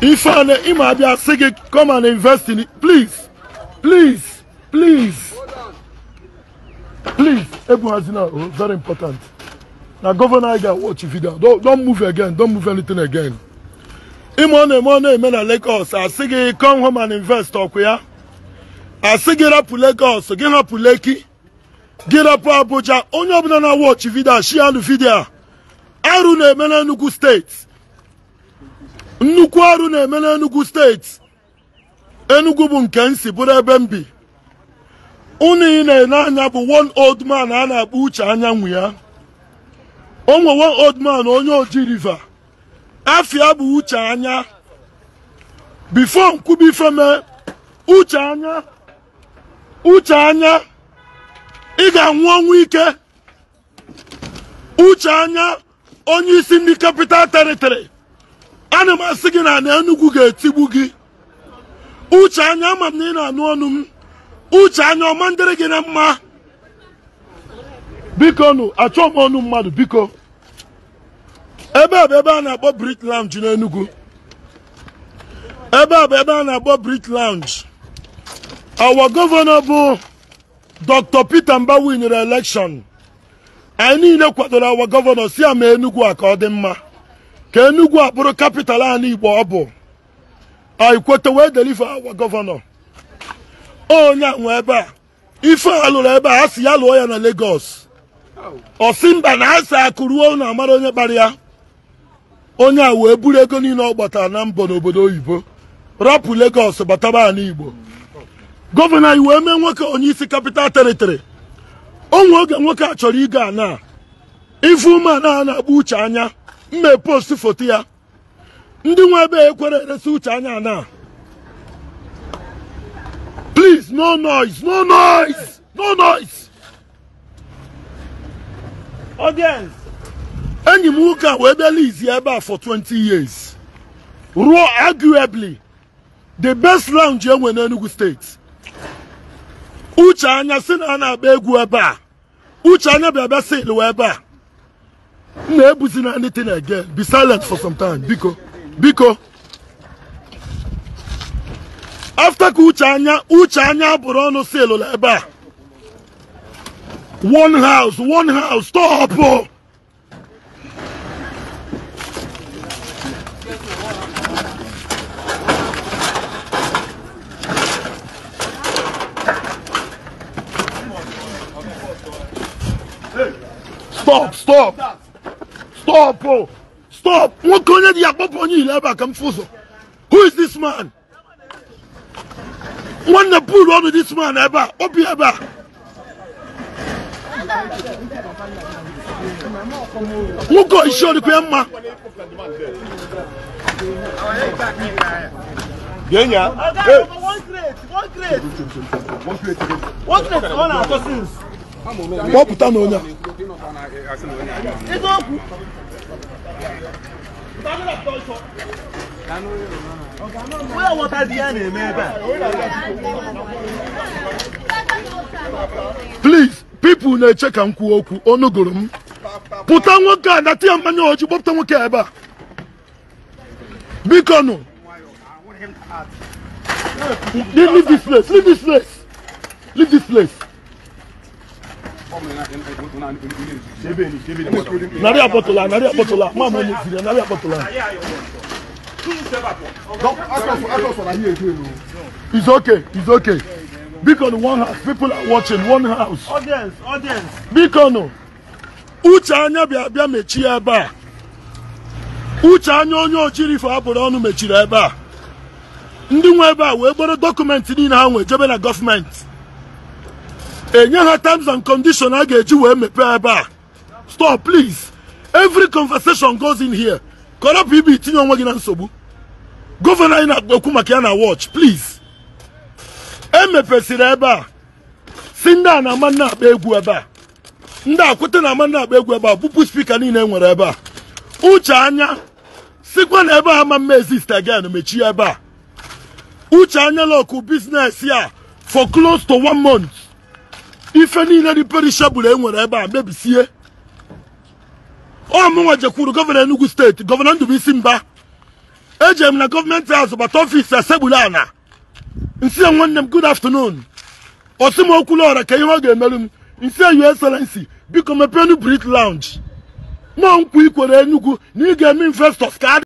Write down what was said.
Ifeanyi ịma abịa sị gị come and invest in it please please please please ebughazina o oh, very important na gọvanọ anyị ga-watch video don't move again don't move anything again ịma ọ na-eme ọ na-eme na Lagos asị gị come home and invest ọkụ ya asị gị rapụ Lagos gị hapụ Lekki gị rapụ Abuja onye ọbụla na-watch video share the video arụ na-eme na nnukwu steeti nnukwu ọrụ na-eme n'Enugu steeti Enugu bụ nke nsi bụrụ ebe m bi unu ị na-ele anya bụ one old man a na-akpọ uche anyanwụ ya o one old man onye oji river afia bụ uche anya bifo nkwubi uche anya uche anya ị ga-anwụ ọnwụ ike uche anya onye isi ndị capital teritori ana m asị gị na ana ga-etigbu gị uche anya ama m na ị na-anụ ọnụ m uche anya ọma ndịrị gị na mma biko nụ achọ m ọnụ mmadụ biko ebe a bụ ebe a na-akpọ Brit Lounge n'Enugu ebe a bụ ebe a na-akpọ Brit Lounge awa gọvanọ bụ Dr. Peter mba nyere elekshọn anyị niile kwadoro awa gọvanọ si ama Enugu a ka ọ dị mma ka Enugu akpụrụ kapital anyị Igbo ọ bụ ikwete wee delive awa gọvanọ onye nwe ebe a ife a lụrụ ebe a a sị ya lụọ ya na Lagos mba na asị akụruo na amara onye kpara ya onye a wee buru ego niile ọ gbatara na mbọ n'obodo oyibo rapụ legos bataba anyị Igbo gọvanọ anyị wee mee nwoke onye isi kapital teritori onwe oge nwoke a chọrọ ịga ana ife ume a na agba uche anya m na-epost foto ya ndị nwe ebe ekwere eresi uche anya na please no noise no noise no noise audience enyi m nwoke a wee bịa lizi ebe a for 20 years ruo arguably the best lounge enwe n'Enugu steeti uche anya si na a na-agba egwu ebe a uche anya bịa bịa sịlụ ebe a Never seen anything again be silent for some time biko biko after Kuchanya, uchanya, anya uche anya one house one house stop stop stop Stop, oh. Stop. Wọ́n kàn yẹ́ di àpapọ̀ yín ilẹ̀ ẹ̀bà kan fún Who is this man? Wọ́n na pull on this man ẹ̀bà. Ó bí ẹ̀bà. Wọ́n kọ́ iṣẹ́ olùkọ́ ẹ̀ ma. Yẹ́nyà. Ọ̀gá one crate, one crate. One crate, one assassin. Wọ́n pùtà n'onya. Where water na Please, people na-eche ka m kwuo okwu, m. Pụta nwoke a nata ya oji nwoke a ebe a. Biko nụ. narị akpọtụla narị akpọtụla nwa m onye tiri narị akpọtụla It's okay, it's okay. Because one house, people are watching one house. Audience, audience. Because Uche anya bịa bịa mechie ebe a. Uche anya onye ojirifo abụrụ ọnụ mechiri ebe a. Ndị nwe ebe a wee gboro dọkụmentị niile ha nwee jebe na gọọmenti. enye ha terms and condition a ga-eji wee mepee ebe a stop please every conversation goes in here kọrọpụ ibe itinye onwe gị na nsogbu gọvanọ anyị na-ekwu maka ya na watch please emepesịrị ebe a si ndị a na-ama nna akpa egwu ebe a ndị akwụta na ama nna akpa egwu ebe a bụpụ spika niile e nwere ebe a uche anya sikwa na ebe a ama mma exist again mechie ebe a uche anya lọkụ biznes ya for close to one month ife niile dị perishabụl e nwere ebe a mebisie ọmụnwa jekwuru gọvanọ Enugu steeti gọvanọ isi Mba ejere m na gọọmenti azụ bata ọfisi asegburu ana nsi nwanne m good afternoon osi m okwulu ọra ka ihe ọ ga-emerụ m nsi yu Excellency biko mepeenu brit lounge mụọ nkwa ikwere Enugu na ị ga-eme ka